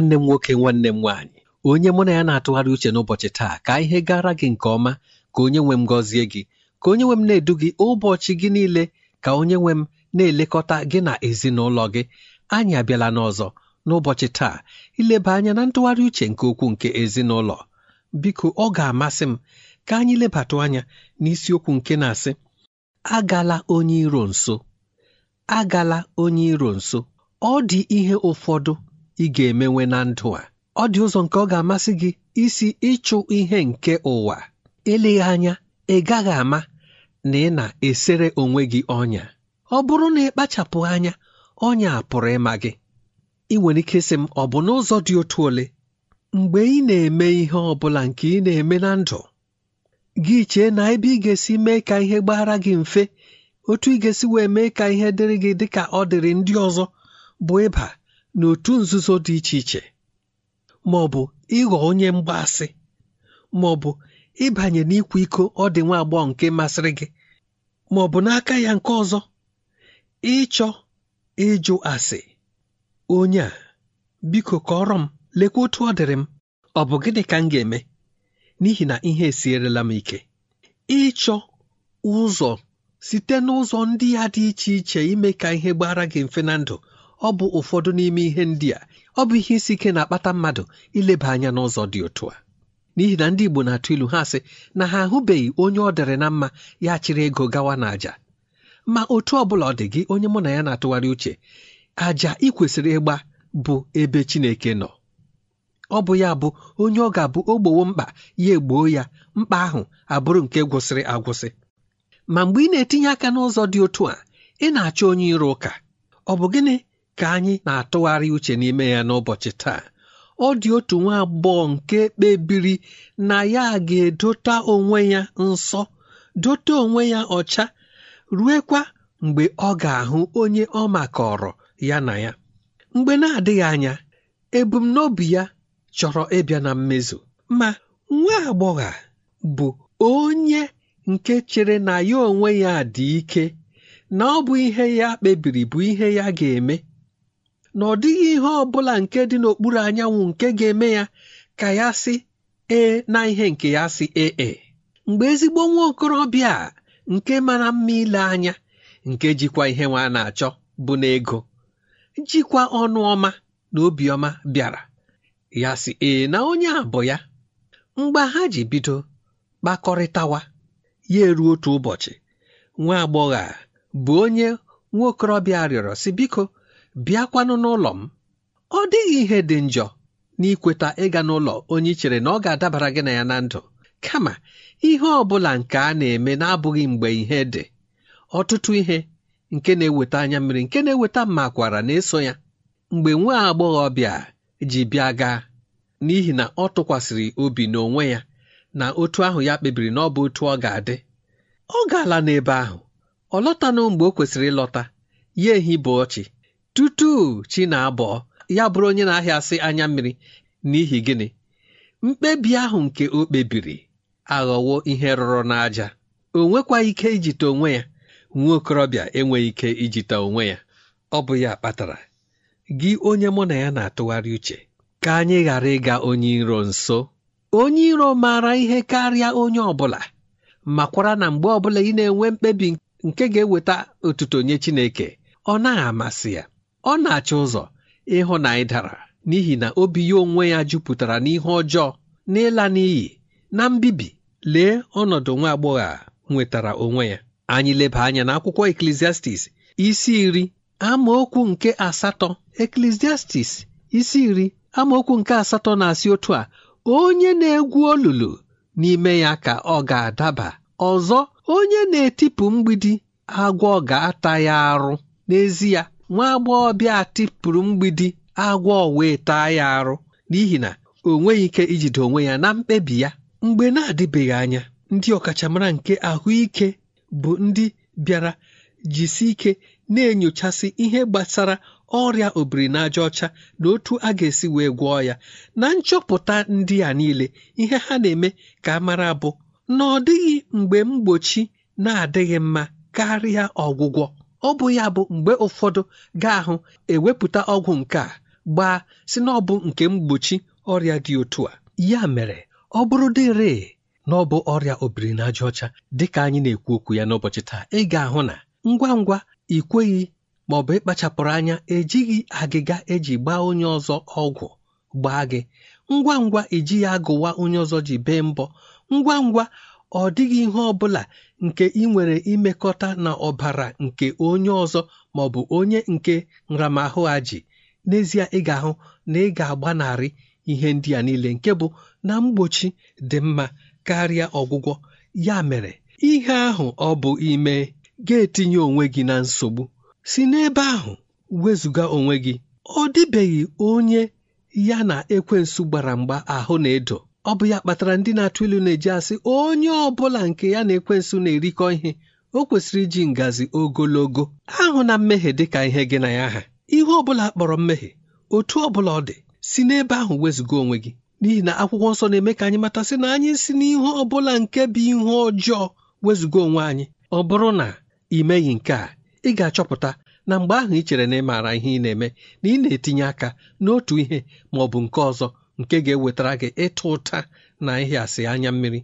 nwanne m nwoke nwanne m nwaanyị onye mụ na ya na-atụgharị uche n'ụbọchị taa ka ihe gara gị nke ọma ka onye nwe m gọzie gị ka onye nwe m na-edu gị ụbọchị gị niile ka onye nwe m na-elekọta gị na ezinụlọ gị anyị abịala n'ọzọ n'ụbọchị taa ileba anya na ntụgharị uche nke okwu nke ezinụlọ biko ọ ga-amasị m ka anyị lebatụ anya n'isiokwu nke na-asị agala onye iro nso agala onye iro nso ọ dị ihe ụfọdụ ị ga-emenwe na ndụ a ọ dị ụzọ nke ọ ga-amasị gị isi ịchụ ihe nke ụwa eleghị anya ị gaghị ama na ị na-esere onwe gị ọnya ọ bụrụ na ị kpachapụ anya ọnya pụrụ ịma gị ị nwere ike sị m ọ bụ n'ụzọ dị otu ole mgbe ị na-eme ihe ọ bụla nke ị na-eme na ndụ gị chee na ebe ị ga-esi mee ka ihe gbaghara gị mfe otu ị ga-esi wee mee ka ihe dịrị gị dị ka ọ dịrị ndị ọzọ bụ ịba n'otu nzuzo dị iche iche ma ọ bụ ịghọ onye mgbaasị ma ọ bụ ịbanye n'ịkwa iko ọ dị nwa agbọghọ nke masịrị gị ma ọ bụ n'aka ya nke ọzọ ịchọ ịjụ asị onye a biko kọrọ m lekwa otu ọ dịrị m ọ bụ gịnị ka m ga-eme n'ihi na ihe esierela m ike ịchọ ụzọ site n'ụzọ ndị ya dị iche iche ime ka ihe gbara gị mfe na ndụ ọ bụ ụfọdụ n'ime ihe ndị a ọ bụ ihe isi ike na-akpata mmadụ ileba anya n'ụzọ dị otu a n'ihi na ndị Igbo na-atụ ilu ha sị na ha ahụbeghị onye ọ dịrị na mma ya chịrị ego gawa na ma otu ọ bụla ọ dị gị onye mụ na ya na-atụgharị uche àjà ị kwesịrị ịgba bụ ebe Chineke nọ ọ bụ ya bụ onye ọ ga-abụ ogbowo mkpa ya egboo ya mkpa ahụ abụrụ nke gwụsịrị agwụsị ma mgbe ị na-etinye aka n'ụzọ dị otu a ị na-achọ onye iro ụka ọ bụ gịnị ka anyị na-atụgharị uche n'ime ya n'ụbọchị taa ọ dị otu nwa agbọghọ nke kpebiri na ya ga-edota onwe ya nsọ dote onwe ya ọcha ruekwa mgbe ọ ga-ahụ onye ọ makọrọ ya na ya mgbe na-adịghị anya ebumnobi ya chọrọ ịbịa na mmezu ma nwa agbọghọ bụ onye nke chere na ya onwe ya dị ike na ọ bụ ihe ya kpebiri bụ ihe ya ga-eme na ọ dịghị ihe ọ bụla nke dị n'okpuru anyanwụ nke ga-eme ya ka ya sị ee na ihe nke ya sị ee e. mgbe ezigbo nwa okorobịa nke mara mma ile anya nke jikwa ihe nwa na-achọ bụ n'ego jikwa ọnụ ọma na obiọma bịara ya sị ee na onye a bụ ya mgbe ha ji bido kpakọrịtawa ya eruo otu ụbọchị nwa agbọghọ a bụ onye nwa okorobịa rịọrọ sị biko bịakwanụ n'ụlọ m ọ dịghị ihe dị njọ n'ikweta ịga n'ụlọ onye ichere na ọ ga-adabara gị na ya na ndụ kama ihe ọ bụla nke a na-eme na-abụghị mgbe ihe dị ọtụtụ ihe nke na-eweta anya mmiri nke na-eweta kwara na-eso ya mgbe nwa bịa ji bịa gaa n'ihi na ọ tụkwasịrị obi n'onwe ya na otu ahụ ya kpebiri na ọ bụ otu ọ ga-adị ọ gaala n'ebe ahụ ọ lọtanụ mgbe o kwesịrị ịlọta ya ehi bụ ọchị tutu chi na ya bụrụ onye na-ahịasị anya mmiri n'ihi gịnị mkpebi ahụ nke o kpebiri aghọwo ihe rụrụ n'aja o nwekwa ike ijite onwe ya nwa okorobịa enweghị ike ijite onwe ya ọ bụ ya kpatara gị onye mụ na ya na-atụgharị uche ka anyị ghara ịga onye iro nso onye iro maara ihe karịa onye ọ bụla makwara na mgbe ọbụla ị na-enwe mkpebi nke ga-eweta otuto nye Chineke ọ naghị amasị ya ọ na-achọ ụzọ ịhụ na anyị dara n'ihi na obi ya onwe ya jupụtara n'ihe ọjọọ n'ịla n'iyi na mbibi lee ọnọdụ nwa agbọghọ a nwetara onwe ya anyị leba anya na akwụkwọ Ecclesiastes isi iri amaokwu nke asatọ Ecclesiastes isi iri amaokwu nke asatọ na-asị otu a onye na-egwu olulu n'ime ya ka ọ ga-adaba ọzọ onye na-etipụ mgbidi agwọ ga-ata ya arụ n'ezie nwa agbọghọbịa a tịpụrụ mgbidi agwọ wee taa ya arụ n'ihi na o nweghị ike ijide onwe ya na mkpebi ya mgbe na-adịbeghị anya ndị ọkachamara nke ahụike bụ ndị bịara jisi ike na-enyochasị ihe gbasara ọrịa obirinaja ọcha na otu a ga-esi wee gwọọ ya na nchọpụta ndị a niile ihe ha na-eme ka amara mara bụ na ọ dịghị mgbe mgbochi na-adịghị mma karịa ọgwụgwọ ọ bụ ya bụ mgbe ụfọdụ gaa ahụ ewepụta ọgwụ nke a gbaa si na ọ bụ nke mgbochi ọrịa dị otu a ya mere ọ bụrụ dịre na ọ bụ ọrịa obirinajaọcha ọcha dịka anyị na-ekwu okwu ya n'ụbọchị taa ị ga-ahụ na ngwa ngwa ikweghị ma ọ bụ ịkpachapụrụ anya ejighị agịga eji gbaa onye ọzọ ọgwụ gbaa gị ngwa ngwa ejighị agụwa onye ọzọ ji bee mbọ ngwa ngwa ọ dịghị ihe ọ bụla nke ị nwere imekọta na ọbara nke onye ọzọ ma ọ bụ onye nke nramahụ a ji n'ezie ị ga-ahụ na ị ga-agbanarị ihe ndị a niile nke bụ na mgbochi dị mma karịa ọgwụgwọ ya mere ihe ahụ ọ bụ ime ga-etinye onwe gị na nsogbu si n'ebe ahụ wezụga onwe gị ọ dịbeghị onye ya na ekwensu gbara mgba ahụ na-edo ọ bụ ya kpatara ndị na-atụ ilu na-eji asị onye ọ bụla nke ya na ekwensu na-erikọ ihe o kwesịrị iji ngazi ogologo ahụ na mmehie dị ka ihe gị na ya ha ihe ọ bụla kpọrọ mmehie otu ọ bụla ọ dị si n'ebe ahụ wezụga onwe gị n'ihi na akwụkwọ nsọ na-eme ka anyị matasị na anyị si n'ihe ọ bụla nke bụ ihe ọjọọ wezụga onwe anyị ọ bụrụ na ị meghị nke a ị ga-achọpụta na mgbe ahụ ị chere na ị maara ihe ị na-eme na ị na-etinye aka n'otu ihe ma bụ nke ọzọ nke ga-ewetara gị ịtụ ụta na ịhịasị anya mmiri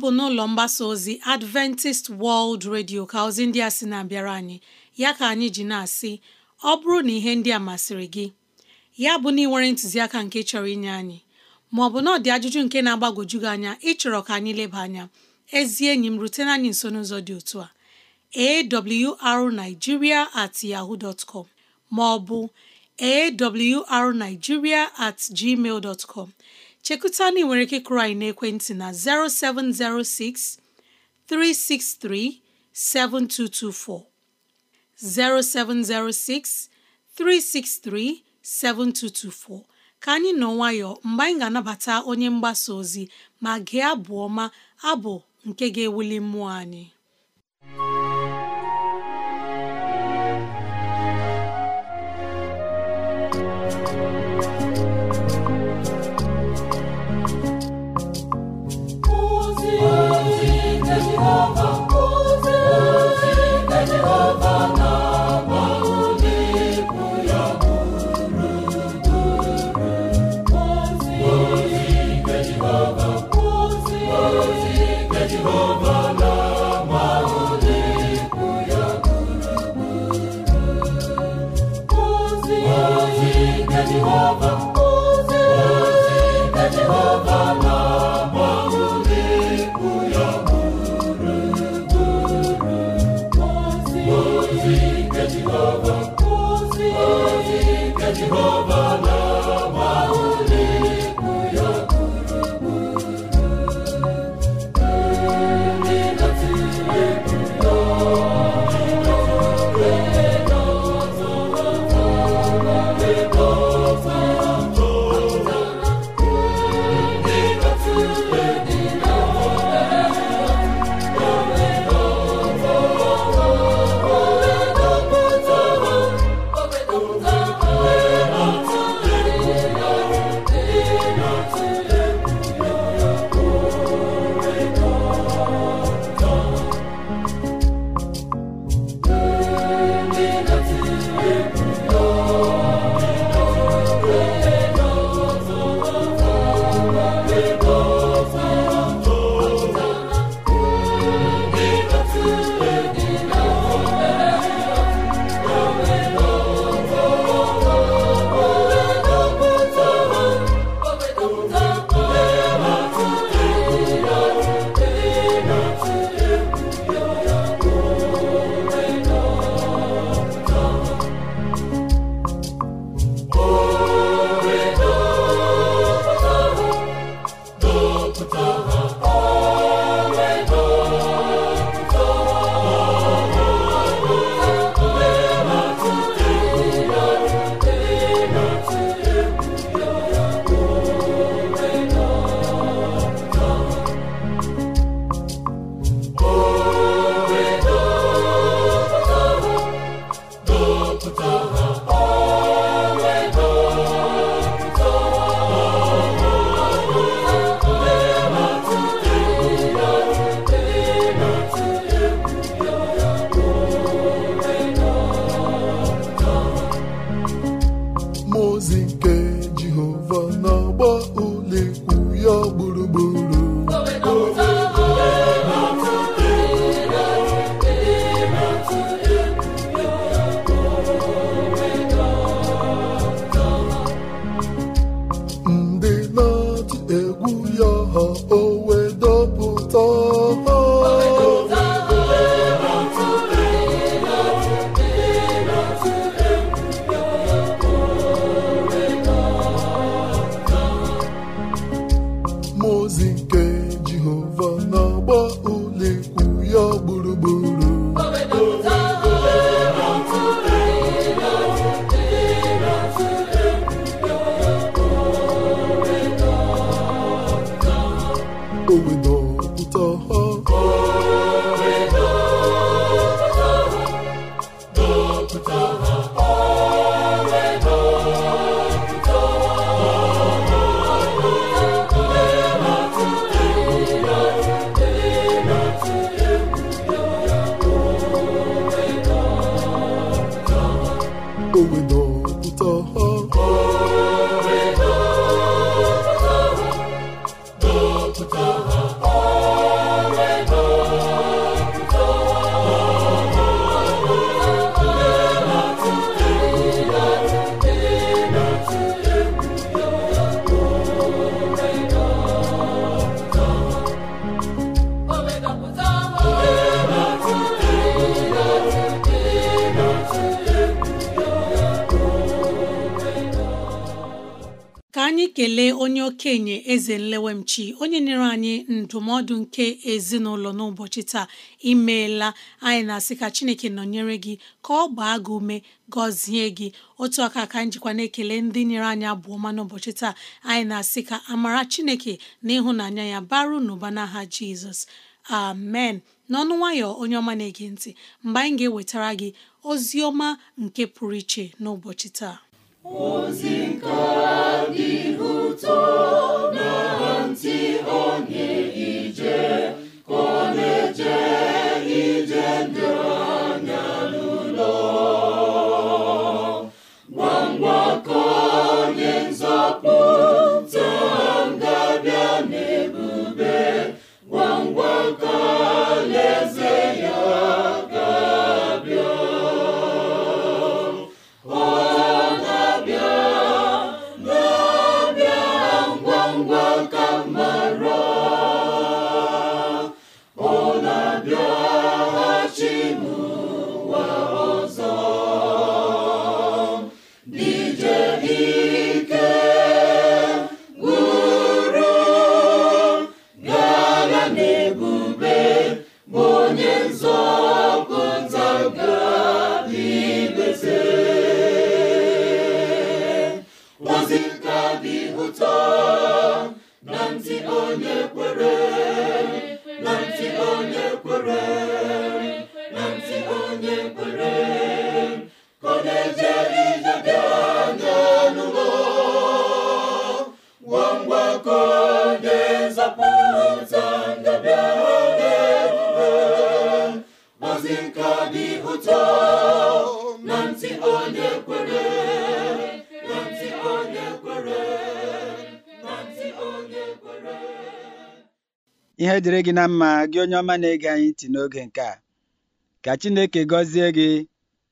bụ n'ụlọ mgbasa ozi Adventist World Radio ka ozi ndị a sị na-abịara anyị ya ka anyị ji na-asị ọ bụrụ na ihe ndị a masịrị gị ya bụ na ị nwere ntụziaka nke chọrọ inye anyị ma ọ bụ na ọ dị ajụjụ nke na-agbagwoju gị anya ịchọrọ ka anyị leba anya ezi enyi m rutena anyị nso n'ụzọ dị otu a awrnigeria at yahoo dot com ma ọ bụ awrnigeria at gmail dot com chekụta na nwere ike kụrụ anyị n'ekwentị na 0706 363 7224 0706 363 7224 ka anyị nọ nwayọọ mgbe anyị ga-anabata onye mgbasa ozi ma gị abụ ọma abụ nke ga-ewuli mmụọ anyị ndụmọdụ nke ezinụlọ n'ụbọchị taa imeela anyị na-asị ka chineke nọnyere gị ka ọ gbaa gị ume gọzie gị otu aka ka njikwa na-ekele ndị nyere anyị abụọ ma n'ụbọchị taa anyị na-asị ka amara chineke na ịhụnanya ya baru n'ụba n'aha jizọs amen n'ọnụ nwayọ onye ọma na-ege ntị mgbe anyị ga-ewetara gị ozi ọma nke pụrụ iche n'ụbọchị taa ozi nke dị ụtọ na ntị ọ Ihe dịrị gị na mma gị onye ọma na-ege anyị ntị n'oge nke a. Ka Chineke gọzie gị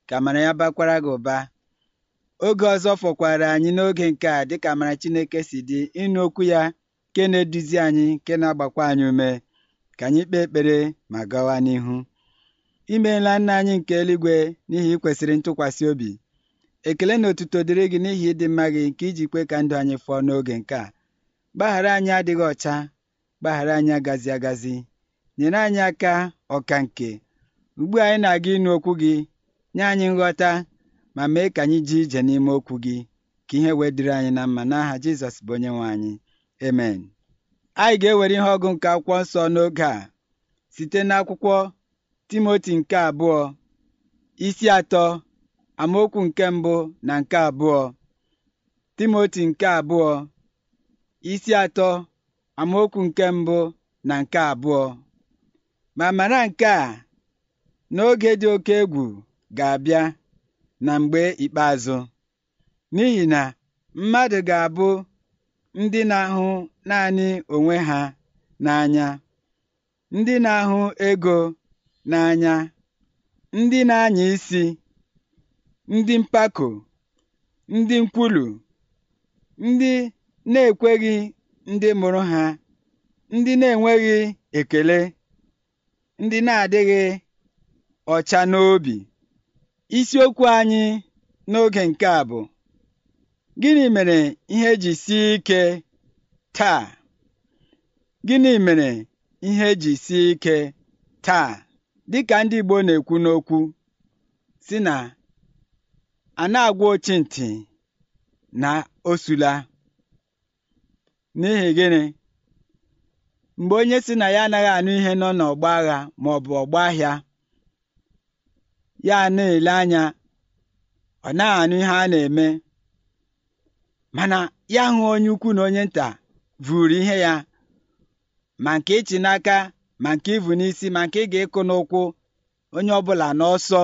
ka amara ya bakwara gị ụba. Oge ọzọ fọkwara anyị n'oge nke a dịka amara Chineke si dị ịnụ okwu ya nke na-eduzi anyị nke na-agbakwa anyị ume ka anyị kpee ekpere ma gawa n'ihu. Imeela nna anyị nke eluigwe n'ihi ikwesịrị ntụkwasị obi. Ekele na otuto dịrị gị n'ihi ịdị mma gị nke iji kwe ka ndụ anyị fọọ n'oge nke a. Gbaghara anyị adịghị ọcha gbaghara anyị agazi agazi nyere anyị aka ọka nke ugbu anyị na-aga ịnụ okwu gị nye anyị nghọta ma mee ka anyị ji ije n'ime okwu gị ka ihe wee dịrị anyị na mma n'aha Jizọs bụ onye nwe anyị amen anyị ga-ewere ihe ọgụ nke akwụkwọ nsọ n'oge a site n'akwụkwọ Timoti nke abụọ isi atọ amaokwu nke mbụ na nke abụọ Timoti nke abụọ isi atọ amaokwu nke mbụ na nke abụọ ma mara nke a n'oge dị oke egwu ga-abịa na mgbe ikpeazụ n'ihi na mmadụ ga-abụ ndị na-ahụ naanị onwe ha n'anya ndị na-ahụ ego n'anya ndị na-anya isi ndị mpako ndị nkwulu ndị na-ekweghị ndị mụrụ ha ndị na-enweghị ekele ndị na-adịghị ọcha n'obi isiokwu anyị n'oge nke a bụ gịnị mere ihe ji sie ike taa gịnị mere ihe ji sie ike taa dịka ndị Igbo na-ekwu n'okwu si na a na-agwa ochintị na osula N'ihi gịnị? Mgbe onye si na ya anaghị anụ ihe nọ n'ọgba agha ma ọ bụ ọgba ahịa, ya na-ele anya ọ naghị anụ ihe a na-eme mana ya hụ onye ukwu na onye nta vụrụ ihe ya ma nke ịchị n'aka ma nke ịvụ n'isi ma nke ị ga-ịkụ n'ụkwụ onye ọbụla n'ọsọ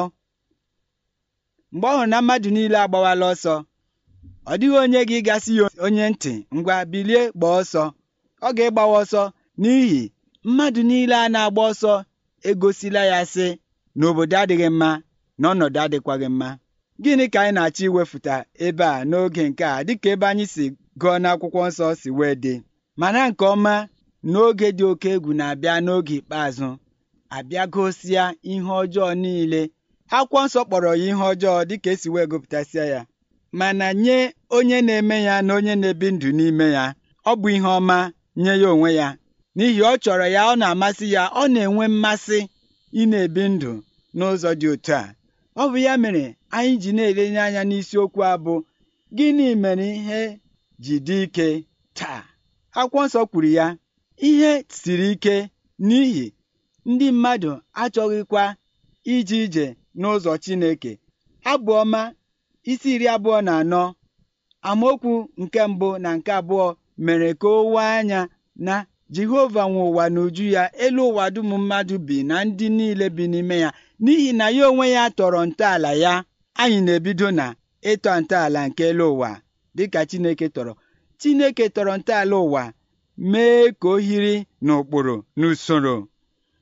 mgbe ọ hụrụ na mmadụ niile agbawala ọsọ ọ dịghị onye gị gasị ya onye ntị ngwa bilie gbaa ọsọ ọ ga-ịgbawa ọsọ n'ihi mmadụ niile a na-agba ọsọ egosila ya sị na obodo adịghị mma na ọnọdụ adịkwaghị mma gịnị ka anyị na-achọ iwefụta ebe a n'oge nke a dịka ebe anyị si gụọ n'akwụkwọ nsọ si wee dị mana nke ọma n'oge dị oke egwu na-abịa n'oge ikpeazụ abịa gosia ihe ọjọọ niile akwụkwọ nsọ kpọrọ ya ihe ọjọọ dịka esi wee gụpụtasịa ya mana nye onye na-eme ya na onye na-ebi ndụ n'ime ya ọ bụ ihe ọma nye ya onwe ya n'ihi ọ chọrọ ya ọ na-amasị ya ọ na-enwe mmasị ị na-ebi ndụ n'ụzọ dị otu a ọ bụ ya mere anyị ji na-elenye anya n'isiokwu a bụ gịnị mere ihe ji dị ike taa akwụkwọ nsọ kwuru ya ihe siri ike n'ihi ndị mmadụ achọghịkwa ije ije n'ụzọ Chineke abụọma. isi iri abụọ na anọ amaokwu nke mbụ na nke abụọ mere ka o wee anya na Jehova nwe ụwa n'uju ya elu ụwa dum mmadụ bi na ndị niile bi n'ime ya n'ihi na ya onwe ya tọrọ ntọala ya anyị na-ebido na ịtọ ntọala nke elu ụwa dịka Chineke tọrọ Chineke tọrọ ntọala ụwa mee ka o hiri n'ụkpụrụ n'usoro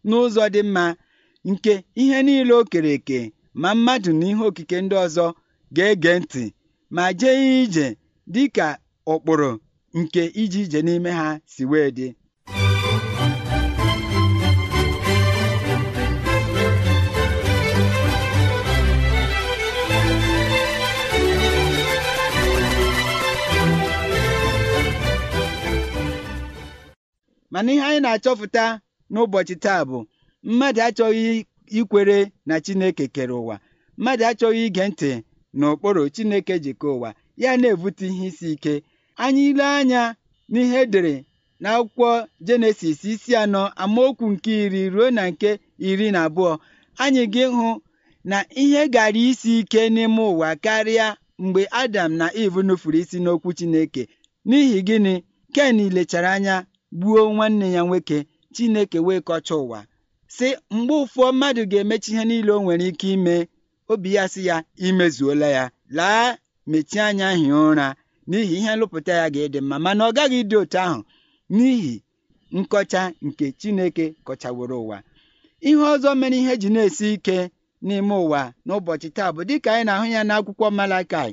n'ụzọ dị mma nke ihe niile o kere eke ma mmadụ na ihe okike ndị ọzọ ga-ege ntị ma jee ije dị ka ụkpụrụ nke ije ije n'ime ha si wee dị mana ihe anyị na-achọpụta n'ụbọchị taa bụ mmadụ achọghị ikwere na Chineke kere ụwa mmadụ achọghị ige ntị n'okporo Chineke jikọ ụwa ya na-ebute ihe isi ike anyị ile anya n'ihe edere n'akwụkwọ Jenesis isi anọ amaokwu nke iri ruo na nke iri na abụọ anyị gị hụ na ihe gara isi ike n'ime ụwa karịa mgbe Adam na Eve nufuru isi n'okwu Chineke n'ihi gịnị Ken lechara anya gbuo nwanne ya nwoke Chineke wee kọcha ụwa si mgbe ụfọ mmadụ ga-emechi ihe niile o nwere ike ime obi ya sị ya imezuola ya laa mechie anya hie ụra n'ihi ihe nlụpụta ya ga-ịdị mma mana ọ gaghị ịdị otu ahụ n'ihi nkọcha nke Chineke kọchaworo ụwa ihe ọzọ mere ihe ji na-esi ike n'ime ụwa n'ụbọchị taa bụ dịka anyị na-ahụ ya n'akwụkwọ Malakai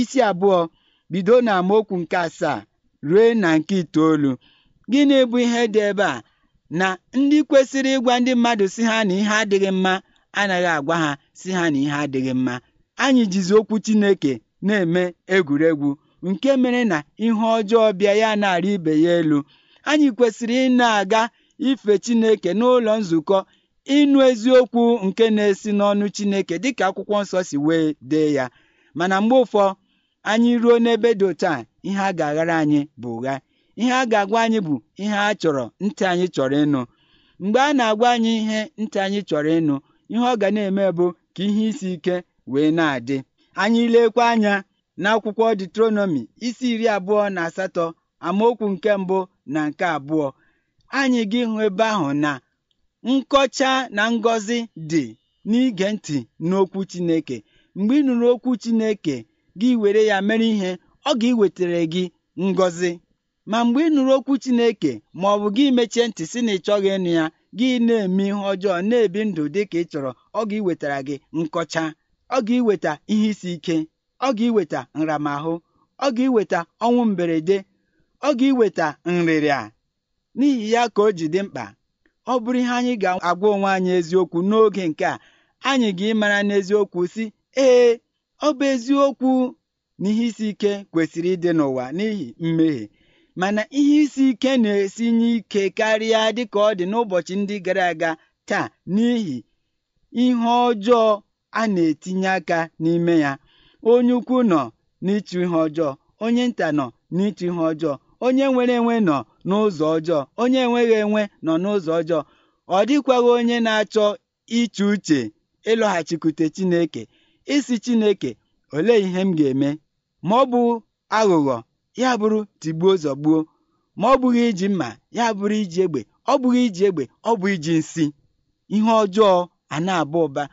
isi abụọ bido na amaokwu nke asaa ruo na nke itoolu gịnị bụ ihe dị ebe a na ndị kwesịrị ịgwa ndị mmadụ si ha na ihe adịghị mma anaghị agwa ha si ha na ihe adịghị mma anyị jizi okwu Chineke na-eme egwuregwu nke mere na ihe ọjọọ bịa ya na-arị ibe ya elu anyị kwesịrị ị na-aga ife Chineke n'ụlọ nzukọ ịnụ eziokwu nke na-esi n'ọnụ Chineke dịka akwụkwọ nsọ si wee dee ya mana mgbe ụfọ anyị ruo n'ebe dị otu a ihe a ga-aghara anyị bụ ụgha ihe a ga-agwa anyị bụ ihe a chọrọ ntị anyị chọrọ ịnụ mgbe a na-agwa anyị ihe ntị anyị chọrọ ịnụ ihe ọ ga na-eme bụ ka ihe isi ike wee na-adị anyị lekwa anya n'akwụkwọ detronomi isi iri abụọ na asatọ amaokwu nke mbụ na nke abụọ anyị gị hụ ebe ahụ na nkọcha na ngọzi dị n'ige ntị n'okwu Chineke mgbe ị nụrụ okwu Chineke gị were ya mere ihe ọ ga-ewetara gị ngọzi ma mgbe ị nụrụ okwu Chineke ma ọ bụ gị mechie ntị si na ị chọghị ịnụ ya gị na-eme ihe ọjọọ na-ebi ndụ dị ka ị chọrọ ọ ga-iwetara gị nkọcha ọ ga-iweta ihe isi ike ọ ga-iweta nramahụ ọ ga-iweta ọnwụ mberede ọ ga-iweta nrịrịa n'ihi ya ka o ji dị mkpa ọ bụrụ ihe anyị ga-agwa onwe anyị eziokwu n'oge nke a anyị ga-ịmara n'eziokwu si ee ọ bụ eziokwu na ihe isi ike kwesịrị ịdị n'ụwa n'ihi mmehie mana ihe isi ike na nye ike karịa dịka ọ dị n'ụbọchị ndị gara aga taa n'ihi ihe ọjọọ a na-etinye aka n'ime ya onye ukwu nọ n'ịchụ ihe ọjọọ onye nta nọ n'ịchụ ihe ọjọọ onye nwere enwe nọ n'ụzọ ọjọọ onye enweghị enwe nọ n'ụzọ ọjọọ ọ dịkwaghị onye na-achọ iche uche ịlọghachikwute Chineke isi Chineke olee ihe m ga-eme ma ọ bụ aghụghọ ya bụrụ tigbuo zọgbuo ma ọ bụghị iji mma ya bụrụ iji egbe ọ bụghị iji egbe ọ bụ iji nsị ihe ọjọọ a na-aba ụba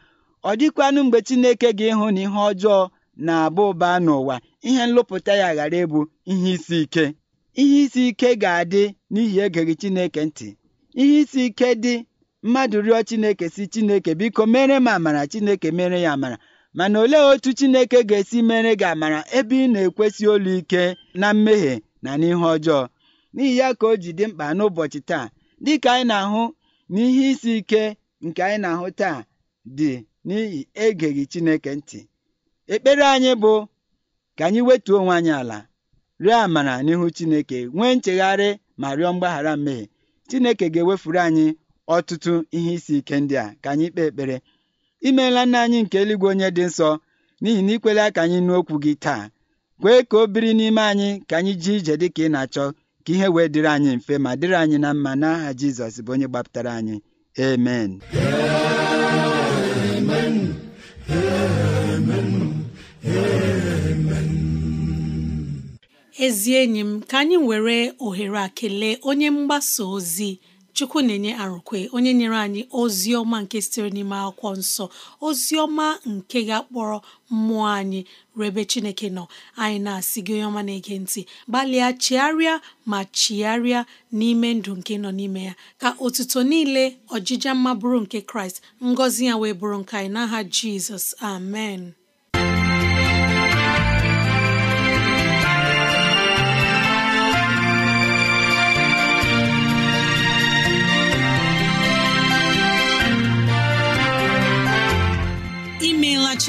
ọ dịkwanụ mgbe Chineke ga-ịhụ na ihe ọjọọ na-aba ụba n'ụwa ihe nlụpụta ya ghara ịbụ ihe isi ike ihe isi ike ga-adị n'ihi egeghị Chineke ntị ihe isi ike dị mmadụ rịọ Chineke si Chineke biko mere m amara Chineke mere ya amara mana olee otu Chineke ga-esi mere gị amara ebe ị na-ekwesị olu ike na mmehie na n'ihe ọjọọ n'ihi ya ka o ji dị mkpa n'ụbọchị taa dịka anyị na-ahụ n'ihe isi ike nke anyị na-ahụ taa dị n'ihi egeghị Chineke ntị ekpere anyị bụ ka anyị wetuo onwe anyị ala rịọ amara n'ihu Chineke nwee nchegharị ma rịọ mgbaghara mmehie Chineke ga-ewefuru anyị ọtụtụ ihe isi ike ndị a ka anyị kpee ekpere imeela nna anyị nke eluigwe onye dị nsọ n'ihi na ikwela aka anyị nụ okwu gị taa kwee ka o biri n'ime anyị ka anyị jee ije dị ka ị na-achọ ka ihe wee dịrị anyị mfe ma dịrị anyị na mma n'aha Jizọs bụ onye gbapụtara anyị amen ezi enyi m ka anyị were ohere a onye mgbasa ozi chukwu na-enye arụkwe onye nyere anyị ozi ọma nke sitere n'ime akwụkwọ nsọ ozi ọma nke ga-akpọrọ mmụọ anyị rebe chineke nọ anyị na-asị gị onye ọma na-ege ntị gbalịa chigharịa ma chigharịa n'ime ndụ nke nọ n'ime ya ka otuto niile ọjịja mma bụrụ nke kraịst ngọzi ya wee bụrụ nke anyị n'aha jizọs amen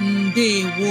ndewo